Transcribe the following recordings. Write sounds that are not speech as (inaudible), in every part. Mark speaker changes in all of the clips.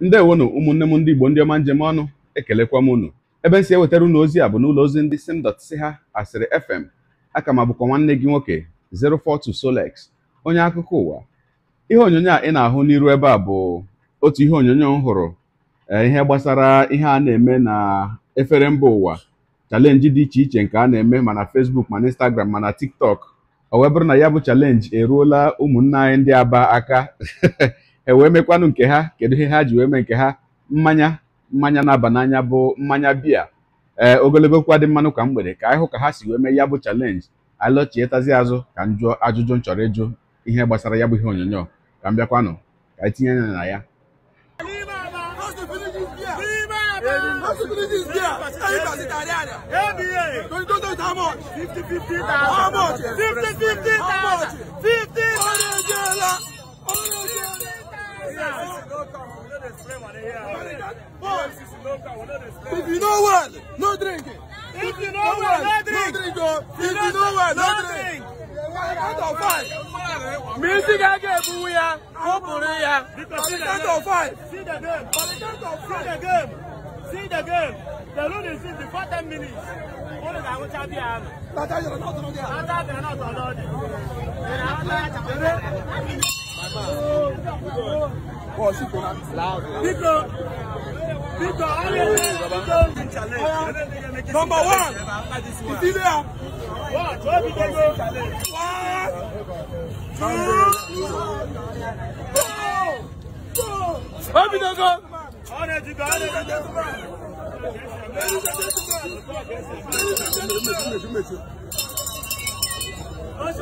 Speaker 1: ndị na ndewonu ụmụnne m ndị Igbo ndị ọma njem ọnụ ekelekwa m unu ebe si ewetara unu ozi a bụ n'ụlọ ozi ndị simdot si ha asịrị fm aka ma bụkwa nwanne gị nwoke 042 Solex onye akụkọ ụwa ihe onyonyo a ị na-ahụ n'iru ebe a bụ otu ihe onyonyo m hụrụ eh, ihe gbasara ihe a na-eme na efere mba ụwa chalenji dị iche iche nke a na-eme mana fesbuk mana instagram mana tiktok ọ wee bụrụ na ya bụ chalenji eruola ụmụnna anyị ndị aba aka (laughs) e wee mekwanụ nke ha kedu ihe ha ji wee mee nke ha mmanya mmanya na-aba n'anya bụ mmanya biya ee eh, ogologo kwa dị mmanụ ka mgbede ka anyị ka ha si wee mee ya bụ chalenji alọchietazi azụ ka m jụọ ajụjụ m chọrọ ịjụ ihe gbasara ya bụ ihe onyonyo ka m bịakwa ka anyị tinye na ya If you know well, no drinking. If you know well, no drinking. If you know well, no drinking. Music again, Buya. Open ya. See the count of five. See the game. For the count five. See the game. See the game. The load is in before ten minutes. Only that will be out. That's how you're not on there. That's how you're not on there. Oh, she's going to loud. Because. Uh, number one, ìdílé a. One, two, three, four. Open the door. Honor to God. Honor to God. Honor to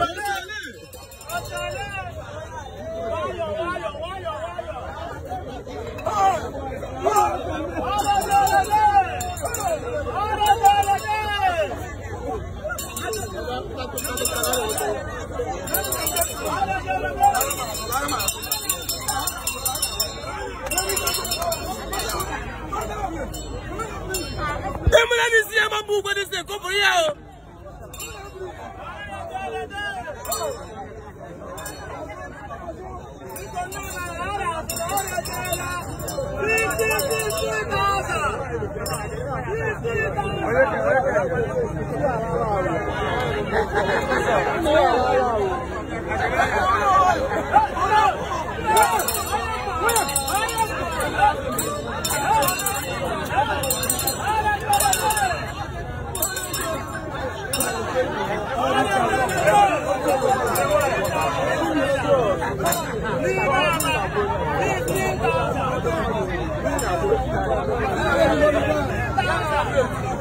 Speaker 1: God. put this thing. Come for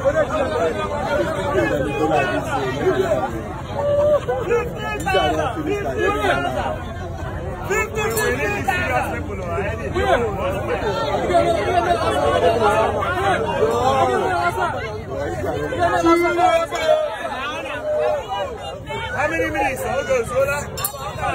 Speaker 1: How many minutes? How goes? How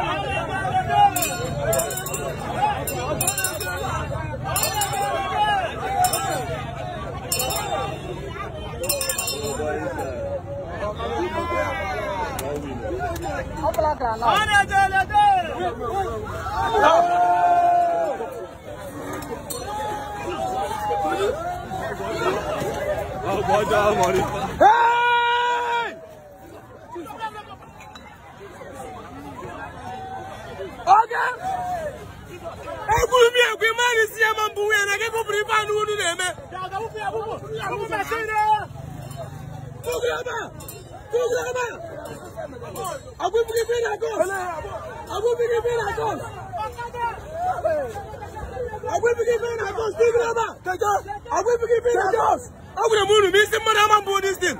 Speaker 1: Come come come Come come come on, on, on! on, on, on! Hey! Oga! Egburu mi egbe mmadụ si ya ma mbụ nwunye na gị bụbụrụ ife Come on, come on, come on, come on! Abu Bili Bela Ghost. Abu Bili Bela Ghost. Abu Bili Bela Ghost. Dig Rama. Abu Bili Bela Ghost. Abu the moon. Miss him, I'm and board this thing. Hey,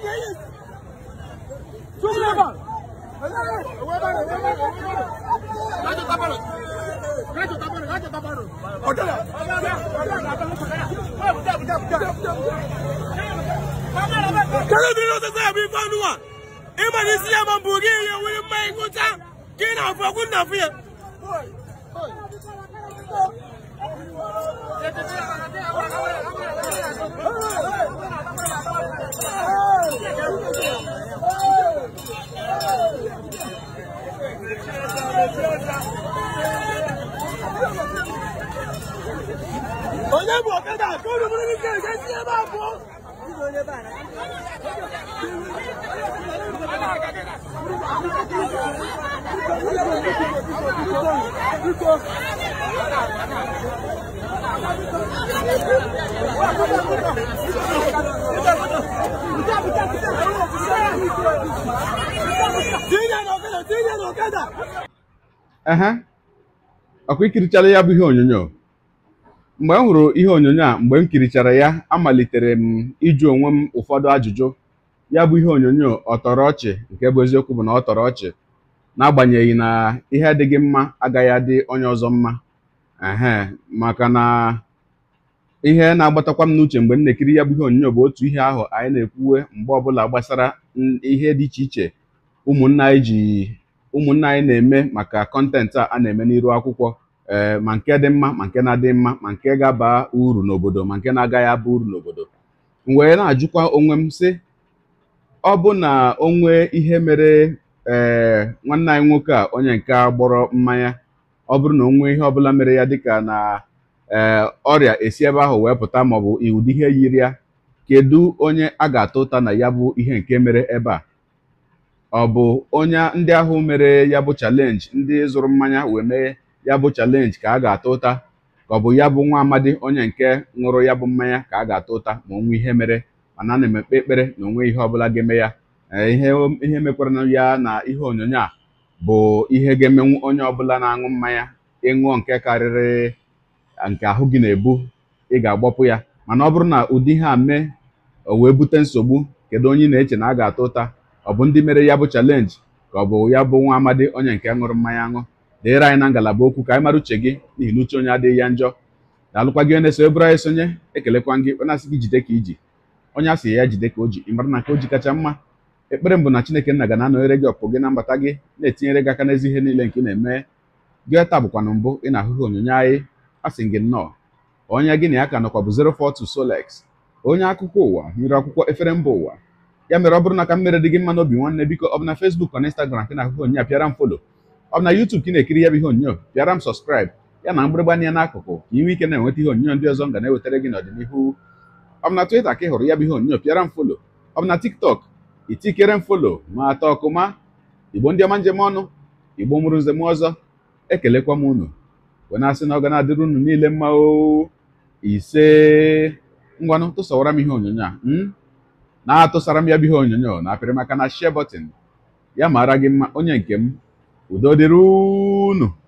Speaker 1: yes. Dig Rama. Raja Tabaro. Raja Tabaro. Raja Tabaro. Odala. Odala. Odala. Odala. Odala imani siya mambugi ya wuli mai kuta kina fogun na fiye Onye bụ ọkada ka ụlọ mụrụ n'ike nke ndị ebe abụọ ehe ọkwa ikirichala ya bụ ihe onyonyo mgbe m hụrụ ihe onyonyo a mgbe m kirichara ya amalitere m ịjụ onwe m ụfọdụ ajụjụ ya bụ ihe onyonyo ọtọrọ ọchị nke bụ eziokwu bụ na ọ tọrọ ọchị n'agbanyeghị na ihe adịghị mma agaghị adị onye ọzọ mma ehe maka na ihe na-agbatakwa m n'uche mgbe m na-ekiri ya bụ ihe onyonyo bụ otu ihe ahụ anyị na-ekwuwe mgbe ọbụla gbasara ihe dị iche iche ụmụnna anyị ji ụmụnna anyị na-eme maka kọntentị a a na-eme n'iru akwụkwọ ee eh, ma nke dị mma ma nke na-adị mma ma nke ga-aba uru n'obodo ma nke na-agaghị aba uru n'obodo m wee na-ajụkwa onwe m sị ọ bụ na onwe ihe mere ee eh, nwanne anyị nwoke a onye nke gbọrọ mmanya ọ bụrụ na onwe ihe ọbụla mere ya dịka na ee eh, ọrịa esi ebe ahụ wee pụta maọbụ ụdị ihe yiri ya kedu onye a ga-ata ụta na ya bụ ihe nke mere ebe a ọ bụ onye ndị ahụ mere ya bụ chalenji ndị zụrụ mmanya wee mee ya bụ chalenji ka a ga-ata ụta ka ọ bụ ya bụ nwa amadi onye nke ṅụrụ ya bụ mmanya ka a ga-ata ụta ma onwe ihe mere mana ana m ekpe ekpere na onwe ihe ọbụla ga-eme ya eh, ihe mekwara ya na ihe onyonyo a bụ ihe ga-emenwu onye ọbụla na-aṅụ mmanya ịṅụọ nke karịrị eh, nke ahụ gị na-ebu ị ga-agbapụ ya mana ọ bụrụ na ụdị ihe a mee o wee bute nsogbu kedu onye na-eche na a ga-ata ụta ọ bụ ndị mere ya bụ chalenji ka ọ bụ ya bụ nwa amadi onye nke ṅụrụ mmanya aṅụ dịrị anyị na ngalaba okwu ka anyị mara uche gị n'ihi na iluche onye adịghị ya njọ daalụkwa alụkwa gị na-eso ebụrụ anyị sonye ekelekwa gị onye asị gị jide ka iji onye asị ya jide ka o ji ịmara na nke o ji kacha mma ekpere mbụ na chineke nna ga na-anọnyere gị ọpụ gị na mbata gị na-etinyere gị aka n'ezi ihe niile nke ị na-eme gị taa bụkwana mbụ ị na-ahụghị onyonyo anyị asị gị nnọọ onye gị na ya ka nọkwa bụ 042 Solex onye akụkọ ụwa nyere akwụkwọ efere mba ụwa ya mere ọ bụrụ na ka mmere dị gị mma n'obi nwanne biko ọ bụ na na Instagram ka na-ahụghị onye apịara m folo ọ bụ na YouTube ka ị na-ekiri ya bụ ihe onyonyo bịara m sọskraịb ya na mgbịrịgba anya n'akụkụ ka ị ike na-enweta ihe onyonyo ndị ọzọ m ga na-ewetara gị n'ọdịnihu ọ bụ na Twitter ka ị hụrụ ya bụ ihe onyonyo pịara m folo ọ bụ na TikTok itikere m folo ma atọ ma. Igbo ndị ọma njem ọnụ Igbo mụrụ nzem ọzọ ekelekwa m unu wee na-asị na ọ ga na-adịrị unu niile mma o ise ngwanụ tụsawara m ihe onyonyo a hmm? na-atụsara m ya bụ ihe onyonyo na apịrị maka na share button ya mara gị mma onye nke m o Doderuno.